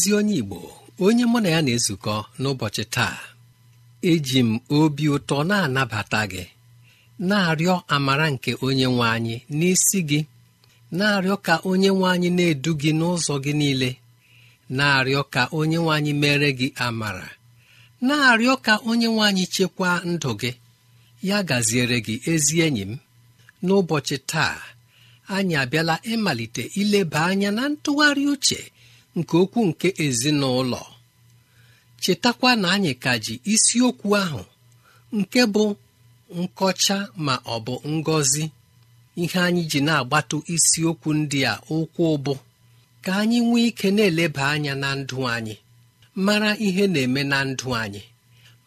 ezi onye igbo onye mụ na ya na-ezukọ n'ụbọchị taa eji m obi ụtọ na-anabata gị na-arịọ amara nke onye nwe anyị n'isi gị na-arịọ ka onye nwe anyị na-edu gị n'ụzọ gị niile na-arịọ ka onye nwe anyị mere gị amara na-arịọ ka onye nwe anyị chekwaa ndụ gị ya gaziere gị ezi enyi m n'ụbọchị taa anyị abịala ịmalite ileba anya na ntụgharị uche nke okwu nke ezinụlọ chetakwa na anyị ka ji isiokwu ahụ nke bụ nkọcha ma ọ bụ ngọzi ihe anyị ji na-agbatụ isiokwu ndị a ụkwụ ụbụ ka anyị nwee ike na-eleba anya na ndụ anyị mara ihe na-eme na ndụ anyị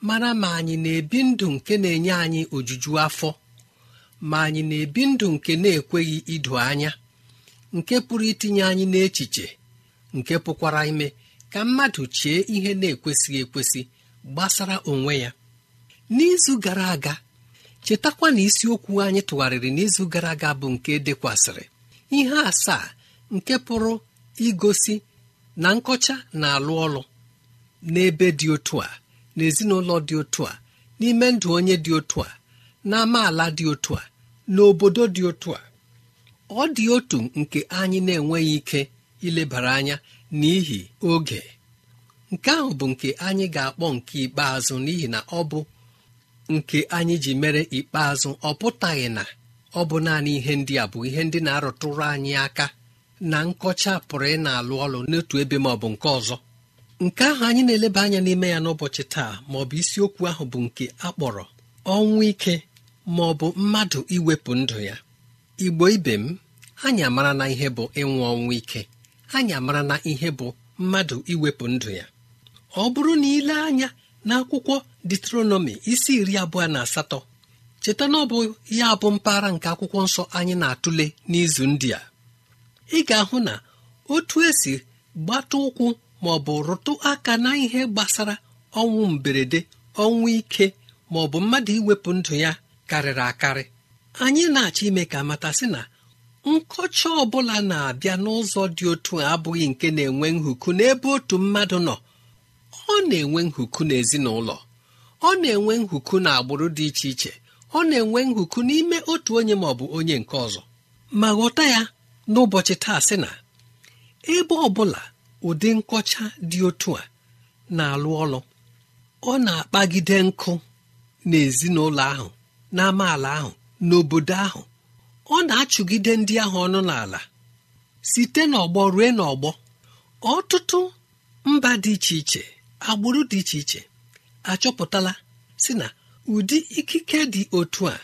mara ma anyị na-ebi ndụ nke na-enye anyị ojuju afọ ma anyị na-ebi ndụ nke na-ekweghị idu anya nke pụrụ itinye anyị n'echiche nke pụkwara ime ka mmadụ chie ihe na-ekwesịghị ekwesị gbasara onwe ya n'izu gara aga chetakwa na isiokwu anyị tụgharịrị n'izu gara aga bụ nke dekwasịrị ihe asaa nke pụrụ igosi na nkọcha na-alụ ọlụ n'ebe dị otu a n'ezinụlọ dị otu a n'ime ndụ onye dị otu a na dị otu a n'obodo dị otu a ọ dị otu nke anyị na-enweghị ike ilebara anya n'ihi oge nke ahụ bụ nke anyị ga-akpọ nke ikpeazụ n'ihi na ọ bụ nke anyị ji mere ikpeazụ ọ pụtaghị na ọ bụ naanị ihe ndị a bụ ihe ndị na-arụtụrụ anyị aka na nkọcha pụrụ ị na-alụ ọlụ n'otu ebe ma ọ bụ nke ọzọ nke ahụ anyị na-eleba anya n'ime ya n'ụbọchị taa ma ọ bụ isiokwu ahụ bụ nke akpọrọ ọnwụ ike ma ọ bụ mmadụ iwepụ ndụ ya igbo ibe m anyị amara na ihe bụ ịnwụ ọnwụ ike anyị mara na ihe bụ mmadụ iwepụ ndụ ya ọ bụrụ na ile anya n'akwụkwọ detronọmi isi iri abụọ na asatọ cheta na ọ bụ ya bụ mpaghara nke akwụkwọ nsọ anyị na-atụle n'izu ndị a ị ga-ahụ na otu esi gbata ụkwụ ma ọ bụ rụtụ aka na ihe gbasara ọnwụ mberede ọnwụ ike ma ọ bụ mmadụ iwepụ ndụ ya karịrị akarị anyị na-achọ ime ka mata sị na nkọcha ọbụla na-abịa n'ụzọ dị otu a abụghị nke na-enwe nhuku n'ebe otu mmadụ nọ ọ na-enwe nhuku n'ezinụlọ ọ na-enwe nhuku na agbụrụ dị iche iche ọ na-enwe nhuku n'ime otu onye ma ọ bụ onye nke ọzọ ma ghọta ya n'ụbọchị taa sị na ebe ọ bụla ụdị nkọcha dị otu a na-alụ ọlụ ọ na-akpagide nkụ n'ezinụlọ ahụ n'amaala ahụ n'obodo ahụ ọ na-achụgide ndị ahụ ọnụ n'ala site n'ọgbọ ruo n'ọgbọ ọtụtụ mba dị iche iche agbụrụ dị iche iche achọpụtala si na ụdị ikike dị otu a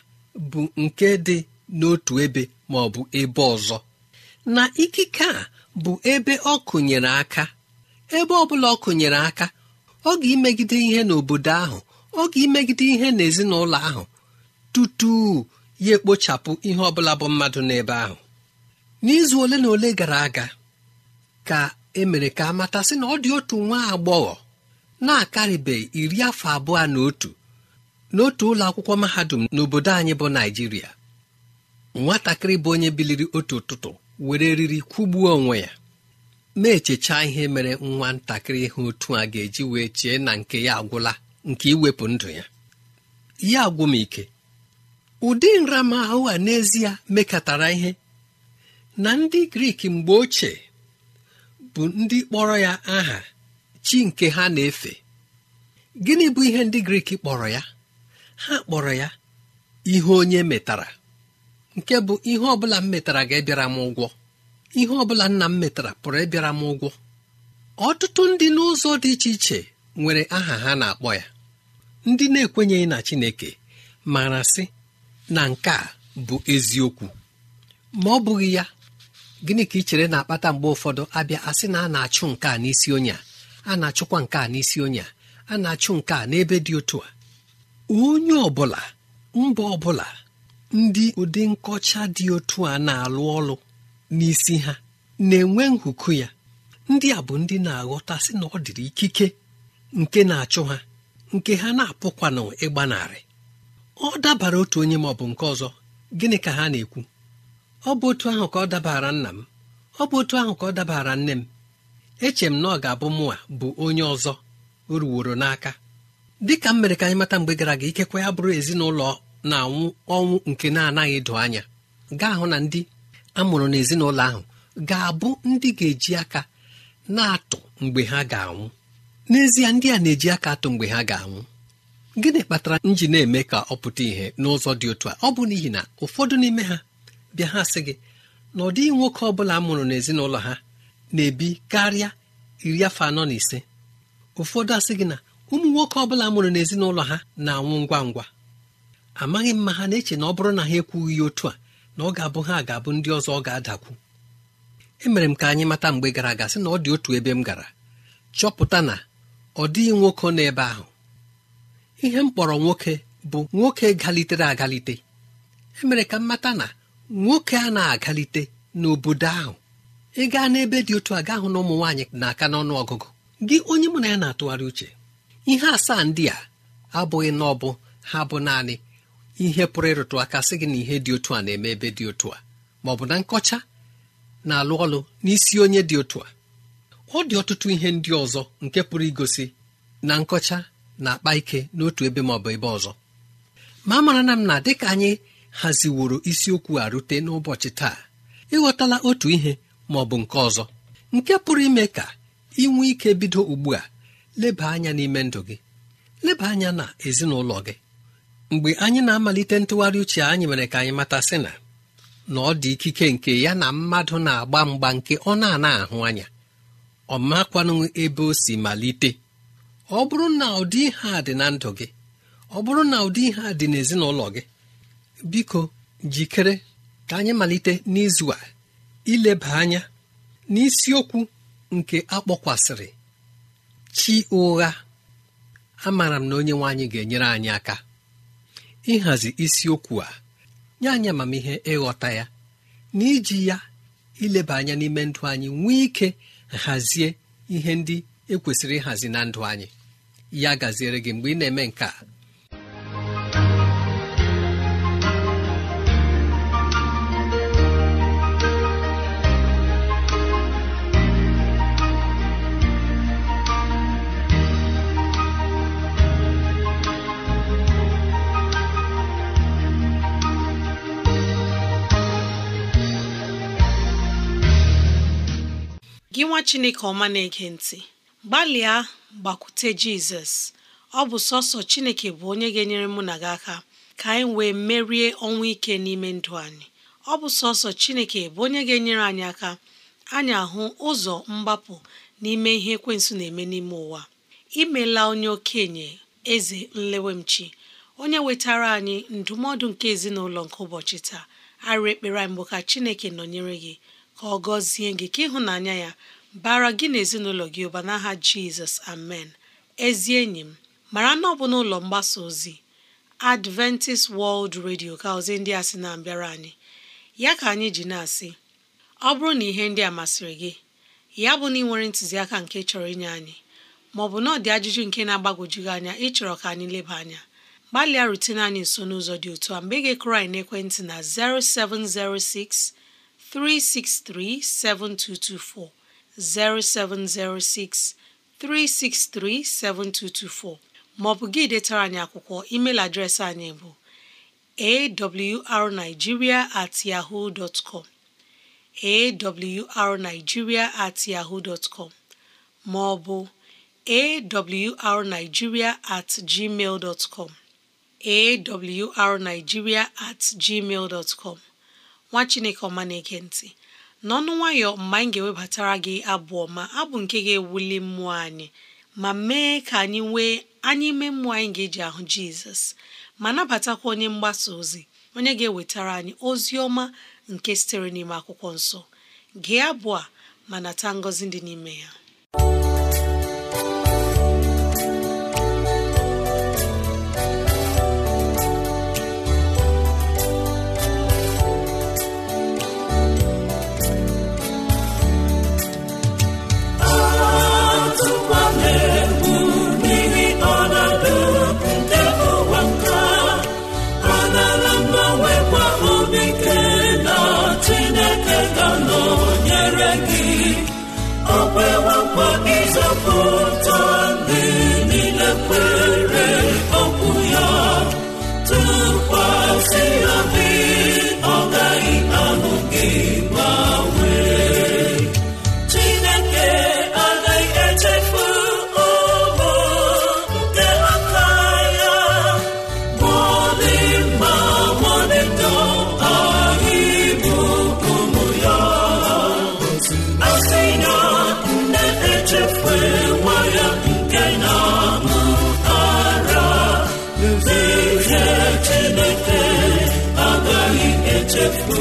bụ nke dị n'otu ebe ma ọ bụ ebe ọzọ na ikike a bụ ebe ọ kụnyere aka ebe ọ bụla ọ kụnyere aka ọ ga-emegide ihe n'obodo ahụ ọ ga-emegide ihe n'ezinụlọ ahụ tutu ya ekpochapụ ihe ọ bụla bụ mmadụ n'ebe ahụ n'izu ole na ole gara aga ka emere ka matasị na ọ dị otu nwa agbọghọ na-akarịbeghị iri afọ abụọ na otu n'otu ụlọ akwụkwọ mahadum n'obodo anyị bụ naijiria nwatakịrị bụ onye biliri otu ụtụtụ were riri kwụgbuo onwe ya na-echecha ihe mere nwa ntakịrị ihe otu a ga-eji wee chee na nke ya agwụla nke iwepụ ndụ ya ya agwụ m ike ụdị nramahụ a n'ezie mekatara ihe na ndị grik mgbe ochie bụ ndị kpọrọ ya aha chi nke ha na-efe gịnị bụ ihe ndị grik kpọrọ ya ha kpọrọ ya ihe onye metara nke bụ ihe ọbụla m metara ga-ebịara m ụgwọ ihe ọbụla nna m metara pụrụ ịbịara m ụgwọ ọtụtụ ndị n'ụzọ dị iche iche nwere aha ha na-akpọ ya ndị na-ekwenyeghị na Chineke mara sị na nke a bụ eziokwu ma ọ bụghị ya gịnị ka ị chere na-akpata mgbe ụfọdụ abịa asị na a na-achụ nke a n'isi onye a na-achụkwa nke a n'isi onye a na-achụ nke a n'ebe dị otu a onye ọbụla mba ọbụla ndị ụdị nkọcha dị otu a na-alụ ọlụ n'isi ha na-enwe nhụkụ ya ndị a bụ ndị na-aghọta sị na ọ dịrị ikike nke na-achụ ha nke ha na-apụkwanụ ịgbanarị ọ dabara otu onye ma ọ bụ nke ọzọ gịnị ka ha na-ekwu ọ bụ otu ahụ ka ọ dabara nna m ọ bụ otu ahụ ka ọ dabara nne m eche m na ọ ga-abụ mụnwa bụ onye ọzọ ruworo n'aka dịka m mere ka anyị mata mgbe gara aga ikekwe ya bụrụ ezinụlọ na-anwụ ọnwụ nke na-anaghị edo anya gaa hụ na ndị amụrụ n'ezinụlọ ahụ ga-abụ ndị ga-eji aka na-atụ mgbe ha ga-anwụ n'ezie ndị a na-eji aka atụ mgbe ha ga-anwụ gịnị kpatara m ji na-eme ka ọ pụta ìhè n'ụzọ dị otu a ọ bụ n'ihi na ụfọdụ n'ime ha bịa ha sị gị na ọ dịghị nwoke ọ bụla mụrụ n'ezinụlọ ha na-ebi karịa iri afọ anọ na ise ụfọdụ asị gị na ụmụ nwoke ọ bụla mụrụ n'ezinụlọ ha na-anwụ ngwa ngwa amaghị mma ha na-eche na ọ bụrụ na ha ekwughị ya otu a na ọ ga-abụ ha ga-abụ ndị ọzọ ọ ga-adakwu emere m ka anyị mata mgbe gara aga sị na ọ dị otu ebe m gara chọpụta na ọ dịghị nwoke ebe ahụ ihe m kpọrọ nwoke bụ nwoke galitere agalite emere ka mmata na nwoke a na-agalite n'obodo ahụ ị gaa n'ebe dị otu a hụ na ụmụ nwaanyị na-aka n'ọnụ ọgụgụ gị onye mụ na ya na-atụgharị uche ihe asaa ndị a abụghị na ọbụ ha bụ naanị ihe pụrụ ịrụtụ aka sị gị na ihe dị otu a na-eme ebe dị otu a ma ọ bụ na nkọcha na-alụ ọlụ n'isi onye dị otu a ọ dị ọtụtụ ihe ndị ọzọ nke pụrụ igosi na nkọcha na-akpa ike n'otu ebe ma ọ bụ ebe ọzọ ma mara na m na dịka anyị haziworo isiokwu a rute n'ụbọchị taa ịghọtala otu ihe ma ọ bụ nke ọzọ nke pụrụ ime ka inwe ike bido ugbu a leba anya n'ime ndụ gị leba anya na ezinụlọ gị mgbe anyị na-amalite ntụgharị uche anyị mere ka anyị mata sị na na ọ dị ikike nke ya na mmadụ na-agba mgba nke ọ na-ana ahụ anya ọ makwanụ ebe o si malite ọ bụrụ na ụdị ihe a dị na ndụ gị ọ bụrụ na ụdị ihe a dị n'ezinụlọ gị biko jikere ka anyị malite n'izu a ileba anya n'isiokwu nke akpọkwasịrị chi ụgha amaara m na onye nwe anyị ga-enyere anyị aka ịhazi isiokwu a nye anyị amamihe ịghọta ya na iji ya ileba anya n'ime ndụ anyị nwee ike hazie ihe ndị ekwesịrị ịhazi na ndụ anyị ya gaziere gị mgbe ị na-eme nke a gị nwa chineke ọma na-ege ntị gbalịa gbakwute jizọs ọ bụ sọsọ chineke bụ onye ga-enyere mụ na gị aka ka anyị wee merie ọnwụ ike n'ime ndụ anyị ọ bụ sọsọ chineke bụ onye ga-enyere anyị aka anyị ahụ ụzọ mgbapụ n'ime ihe ekwensu na-eme n'ime ụwa imela onye okenye eze nlewemchi onye wetara anyị ndụmọdụ nke ezinụlọ nke ụbọchị taa arịa ekpere mbụ ka chineke nọnyere gị ka ọ gọzie gị ka ịhụnanya ya bara gị na ezinụlọ gị ụba n'aha jizọs amen ezi enyi m mara na ọ bụ n'ụlọ mgbasa ozi adventist world radio ka ozi ndị a sị na-abịara anyị ya ka anyị ji na-asị ọ bụrụ na ihe ndị a masịrị gị ya bụ na ị nwere ntụziaka nke chọrọ inye anyị maọbụ na ọ dị ajụjụ nke na-agbagwojighị anya ịchọrọ ka anyị leba anya gbalịa rutene anyị nso n'ụzọ dị otu a mgbe ị ga na'ekwentị anyị n'ekwentị na 0706 363 7224 0706 363 7224 maọbụ gị detara anyị akwụkwọ email adreesị anyị bụ awrnigeria at yahoo dot com awrnigeria at yahoo dot com maọbụ awrnigeria at gmail dot com awrnigeria at gmail dot com nwa chineke ọma na-ege ntị n'ọnụ nwayọ mgbe anyị ga-ewebatara gị abụ ọma abụ nke ga-ewuli mmụọ anyị ma mee ka anyị nwee anyị ime mmụọ anyị ga-eji ahụ jizọs ma nabatakwa onye mgbasa ozi onye ga-ewetara anyị ozi ọma nke sitere n'ime akwụkwọ nsọ gee abụ a ma nata ngọzi dị n'ime ya na-amụtara eze Chineke agaghị echefu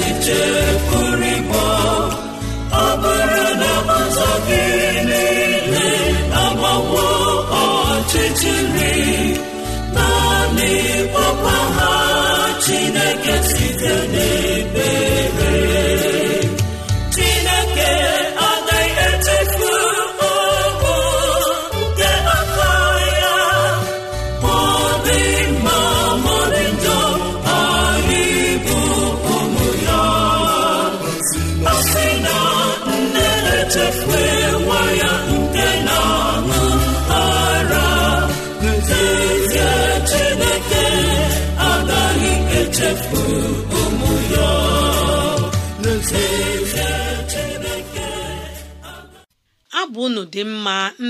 echiche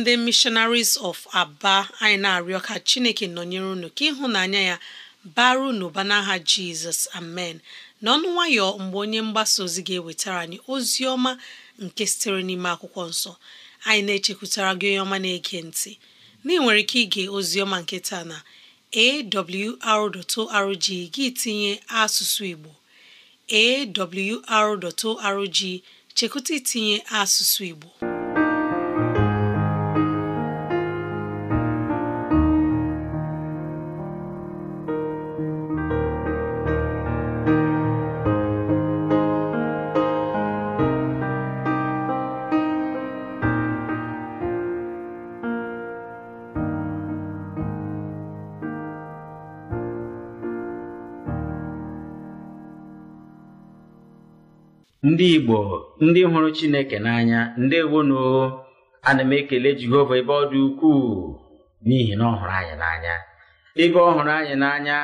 ndị missionaries of aba anyị na-arịọ ka chineke nọnyere unu ka ịhụnanya ya bara unu n'aha jizọs amen n'ọnụ nwayọ mgbe onye mgbasa ozi ga-ewetara anyị ozi ọma nke sitere n'ime akwụkwọ nsọ anyị na-echekwutara gị onye ọma na-ege ntị na ị nwere ike ige ozi ọma nke taa na awr.org gị tinye asụsụ igbo awr.org chekwụta itinye asụsụ igbo ndị igbo ndị hụrụ chineke n'anya ndị ndewonu ana m ekele jehova ebe ọ dị ukwuu n'ihi na ọ hụrụ anyị n'anya ebe ọ hụrụ anyị n'anya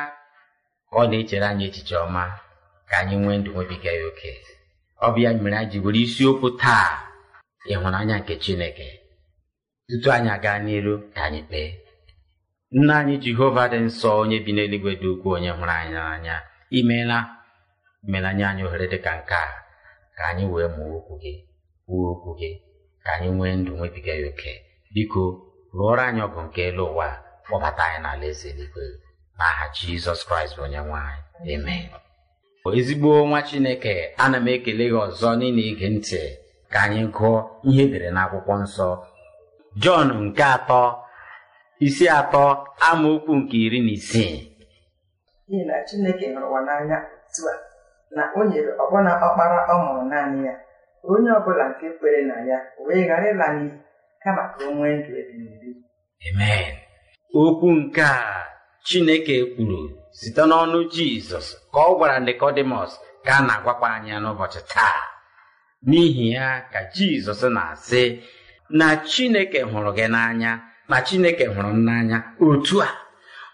ọ na-echere anyị echiche ọma ka anyị nwee ndụ nwebiga ya oke ọ bụ ya mere anyị ji were isiokwu taa ịhụnanya nke chineke tutu anyị aga n'iru ka anyị kpee nna anyị jehova dị nsọ onye bi n'eluigwe dị ukwuu onye hụrụ anyị n'anya imeela imeela anyị ohere dị ka nke a ka anyị wee mụọ okwu gị kwuo okwu gị ka anyị nwee ndụ nwebiga ya oke biko rụọrọ anyị ọgụ nke elu ụwa kpọbata anyị n'ala eze eluigwe n'aha jizọs kraịst bụ onye nwe anyị ezigbo nwa chineke ana m ekele gị ọzọ n'ile ige ntị ka anyị gụọ ihe edere n'akwụkwọ nsọ jọn nke atọ isi atọ amaokwu nke iri na isii na chineke n'anya otu a na o nyere ọbụna ọkpara ọ mụrụ naanị ya onye ọ bụla nke kwere na ya wee ghara ịla n'iyi kama ka o nwee ndụ ebighị amen okwu nke a chineke kwuru site n'ọnụ jizọs ka ọ gwara nikọdimọs ka a na-agwakwa anya n'ụbọchị taa n'ihi ya ka jizọs na-asị na chineke hụrụ gị n'anya na chineke hụrụ m n'anya otu a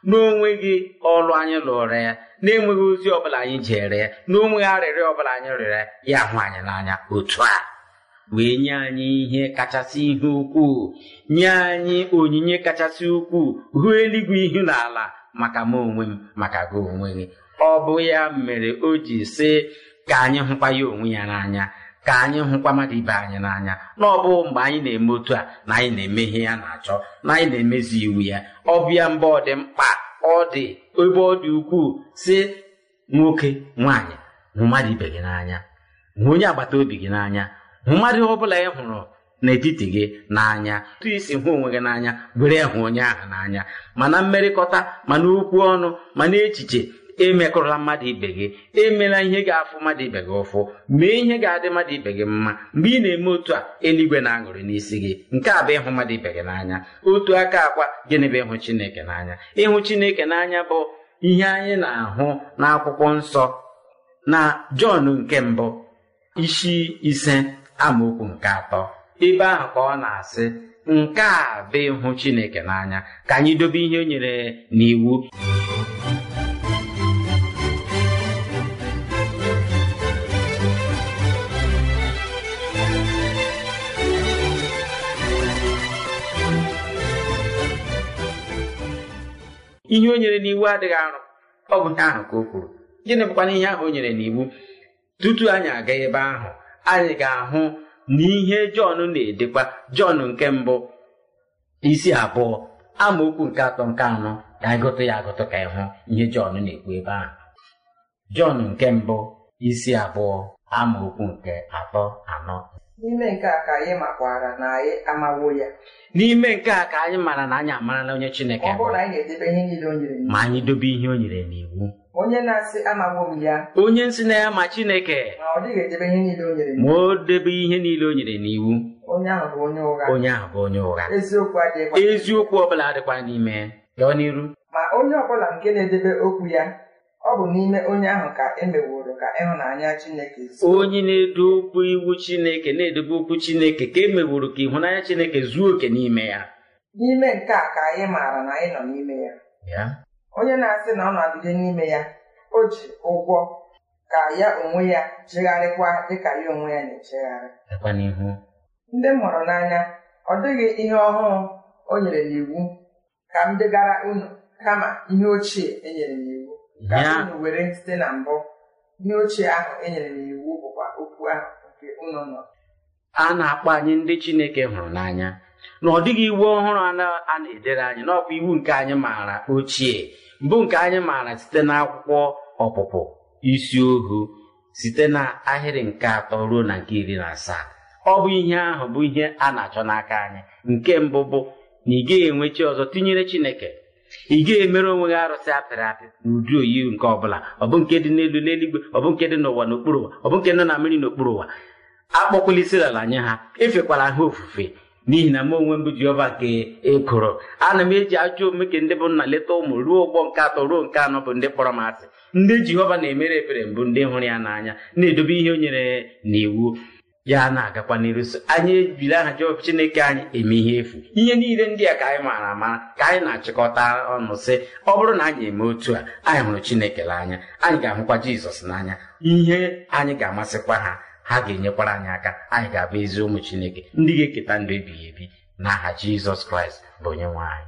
n'onwe gị ọlụ anyị lụrụ ya na-enweghị ozi ọbụla anyị jere ya n'onweghị arịrịọ ọbụla anyị rịọrọ ya hụ anyị n'anya otu a wee nye anyị ihe kachasị ihe ukwuu nye anyị onyinye kachasị ukwuu hụ eluigwe ihu na ala maka m onwe m maka gị onwe gị ọ bụ ya mere o ji sị ka anyị hụkwa ya onwe ya n'anya ka anyị hụkwa mmadụ ibe anyị n'anya na ọ bụ mgbe anyị na-eme otu a na anyị na-eme ihe ya na-achọ na anyị na-emezi iwu ya ọbịa mba ọ dị mkpa ọ dị ebe ọ dị ukwuu si nwoke nwaanyị hụ mmadụ ibe gị n'anya hụ onye agbata obi gị n'anya hụ mmadụ ọ bụla ị hụrụ n'etiti gị n'anya tụ isi hụ onwe gị n'anya were hụ onye ahụ n'anya mana mmerịkọta mana okwu ọnụ mana echiche emekụrụla mmadụ ibe gị emela ihe ga-afụ mmadụ ibe gị ụfụ mee ihe ga-adị mmadụ ibe gị mma mgbe ị na-eme otu a eluigwe na-aṅụrị n'isi gị nke a bụ ịhụ mmadụ ibe gị n'anya otu aka akwa gịnị bụ ịhụ chineke n'anya ịhụ chineke n'anya bụ ihe anyị na-ahụ n'akwụkwọ nsọ na jọn nke mbụ isi ise amaokwu nke atọ ebe ahụ ka ọ na-asị nke a bụ ịhụ chineke n'anya ka anyị dobe ihe o nyere n'iwu ihe o nyere n'iwu adịghị arụ ọ bụ ihe ahụ ka o kwuru gịnị bụkwana ihe ahụ o nyere n'iwu tutu anyị aga ebe ahụ anyị ga-ahụ na ihe Jọn na-edekwa Jọn nke mbụ isi abụọ amaokwu nke atọ nke anọ ka ịgụtụ ya agụtụ ka ịhụ ihe Jọn na-ekwu ebe ahụ Jọn nke mbụ isi abụọ amaokwu nke atọ anọ n'ime nke a ka anyị makwara na anyị amawo ya n'ime nke a ka anyị mara na anyị amarala onye chineke ọ bụrụ anyị na-edebe ihe niile o nyere ma anyị dobe ihe o nyere n'iwu onye na-asị amawo m ya onye nsị na ya ma chineke ma ọ dịghị edebe ihe niile o nyere ma o debe ihe niile o nyere n'iwu onye ahụ bụ onye ụgha onye ahụ bụ onye ụgha eziokwu adịghịkwa eziokwu ọ bụla adịkwa n'ime lọọ n'iru ma onye ọbụla nke na-edebe okwu ya ọ bụ n'ime onye ahụ ka emeworo ka ịhụnanya Chineke onye na-edo okwu iwu Chineke na-edobe okwu Chineke ka emeworo ka ịhụnanya Chineke zuo oke n'ime ya n'ime nke a ka anyị maara na anyị nọ n'ime ya onye na-asị na ọ nọgide n'ime ya o ji ụgwọ ka ya onwe ya chegharịkwa dịka ya onwe ya na-echegharị ndị mụrụ n'anya ọ dịghị ihe ọhụrụ o nyere n'iwu ka m degara unu kama ihe ochie e nyere n'iwu ka were site na mbụ ihe ochie ahụ e nyere n'iwu bụkwa okwu ahụ nke unu nọ a na-akpọ anyị ndị Chineke hụrụ n'anya na ọ dịghị iwu ọhụrụ a na-edere anyị n'ọkwa iwu nke anyị maara ochie mbụ nke anyị maara site n'akwụkwọ ọpụpụ isi ohu site n'ahịrị nke atọ ruo na nke iri na asaa ọ bụ ihe ahụ bụ ihe a na-achọ n'aka anyị nke mbụ bụ na ị gaghị enwe chi ọzọ tinyere Chineke ị ga-emere onwe gị arụsị apịrị apị n'ụdị oyi nke ọbụla ọbụ nke dị n'elu n'eluigwe ọbụ nke dị n'ụwa n'okpuru ụwa ọbụ nke nọ na mmiri n'okpuru ụwa akpọkwala isi ala nye ha efekwala ha ofufe n'ihi na m onwe m bụ Jehova nke ekoro ana m eji ajọ omume nke ndị bụ nna leta ụmụ ruo ụgbọ nke atọ ruo nke anọ bụ ndị kpọrọ m asị ndị Jehova na-emere ebere mbụ ndị hụrụ ya n'anya na-edobe ihe o nyere n'iwu ya na-agakwa n'iru so anyị ejiri aha chineke anyị eme ihe efu ihe niile ndị a ka anyị maara ama ka anyị na-achịkọta ọnụ sị ọ bụrụ na anyị eme otu a anyị hụrụ chineke n'anya anyị ga-ahụkwa jizọs n'anya ihe anyị ga-amasịkwa ha ha ga-enyekwara anyị aka anyị ga-abụ ezi ụmụ chineke ndị ga-eketa ndụ ebighị ebi n'aha jizọs kraịst bụ onye nwe anyị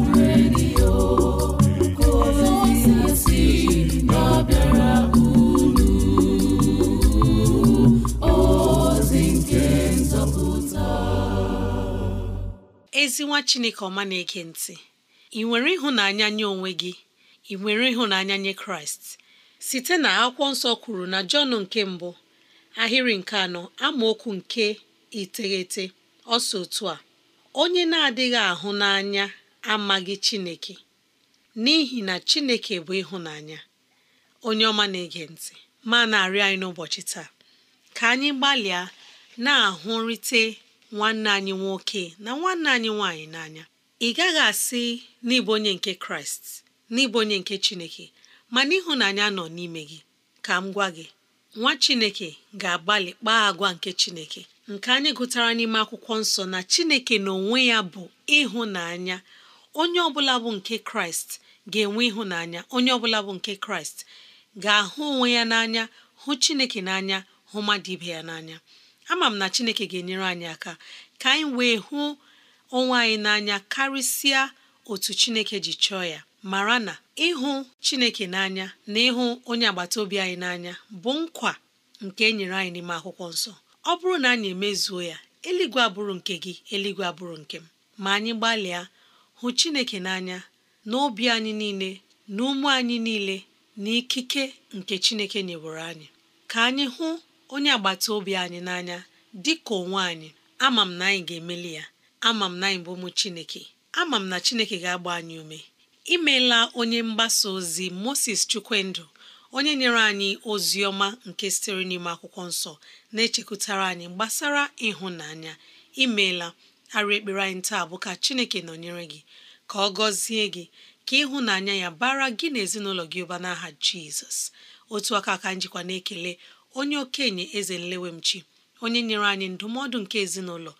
ezi nwa chineke ọma na-ege ntị ị nwere ịhụnanya nye onwe gị ị nwere ịhụnanya nye kraịst site na akwụkwọ nsọ kwuru na jọn nke mbụ ahịrị nke anọ amaokwu nke iteghete ọsọ otu a onye na-adịghị ahụ n'anya amaghị chineke n'ihi na chineke bụ ịhụnanya onye ọma na-ege ntị ma na-arịọ anyị n'ụbọchị taa ka anyị gbalịa na-ahụrịte nwanne anyị nwoke na nwanne anyị nwaanyị n'anya ị gaghị asị n'ịbụ onye nke kraịst n'ịbụ onye nke chineke mana ịhụnanya nọ n'ime gị ka m gwa gị nwa chineke ga-agbalị kpaa agwa nke chineke nke anyị gụtara n'ime akwụkwọ nsọ na chineke n'onwe ya bụ ịhụnanya onye ọbụla bụ nke kraịst ga-enwe ịhụnanya onye ọbụla bụ nke kraịst ga-ahụ onwe ya n'anya hụ chineke n'anya hụ mmadụ ibe ya n'anya ama m na chineke ga-enyere anyị aka ka anyị wee hụ onwe anyị n'anya karịsịa otu chineke ji chọọ ya mara na ịhụ chineke n'anya na ịhụ onye agbata obi anyị n'anya bụ nkwa nke e nyere anyị n'ime akwụkwọ nsọ ọ bụrụ na anyị emezuo ya eluigwe abụrụ nke gị eluigwe abụrụ nke m ma anyị gbalịa hụ chineke n'anya obi anyị niile na ume anyị niile na ikike nke chineke nyewere anyị ka anyị hụ onye agbata obi anyị n'anya dị ka onwe anyị ama m na anyị ga-emeli ya ama m na anyị bụ ụmụ Chineke ama m na Chineke ga-agba anyị ume imeela onye mgbasa ozi Moses Chukwendụ onye nyere anyị ozi ọma nke sitere n'ime akwụkwọ nsọ na-echekwutara anyị gbasara ịhụnanya imeela arị ekpere anyị taa bụ ka Chineke nọnyere gị ka ọ gọzie gị ka ịhụnanya ya bara gị na ezinụlọ gị ụba n'aha Jizọs otu aka aka njikwa na-ekele onye okenye eze nlewemchi onye nyere anyị ndụmọdụ nke ezinụlọ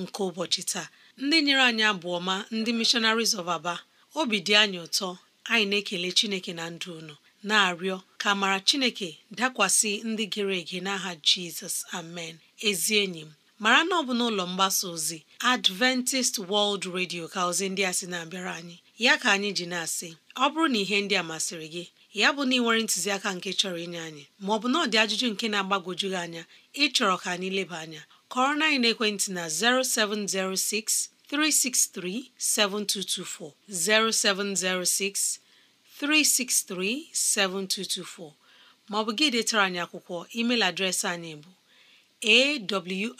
nke ụbọchị taa ndị nyere anyị abụ ọma ndị missionaries of aba obi dị anyị ụtọ anyị na-ekele chineke na ndụ unu na-arịọ ka mara chineke dakwasị ndị gere ege n'aha jizọs amen ezi enyi m mara na ọ bụ n'ụlọ mgbasa ozi adventist world radio ka ozi ndị a sị na-abịara anyị ya ka anyị ji na-asị ọ bụrụ na ihe ndị a masịrị gị ya bụ na ị nwere ntụziaka nke chọrọ inye anyị ma ọ bụ na ọ dị ajụjụ nke na-agbagwoju gị anya chọrọ ka anyị leba anya kọrọ na anyị na 0706 363 7224 0706 7224 ma ọ bụ gị detara anyị akwụkwọ email adreesị anyị bụ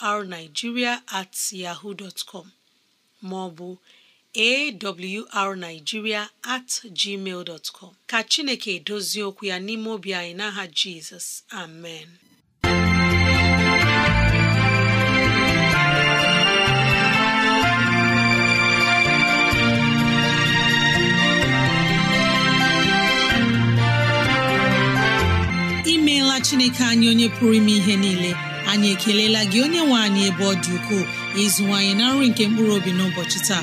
awrnigeria at yahoo maọbụ awrnigeria at gmail dot com ka Chineke edozie okwu ya n'ime obi anyị n'aha Jizọs amen imeela Chineke anyị onye pụrụ ime ihe niile anyị ekelela gị onye nwe anyị ebe ọ dị ukwuu ịzụwanyị na nri nke mkpụrụ obi n'ụbọchị taa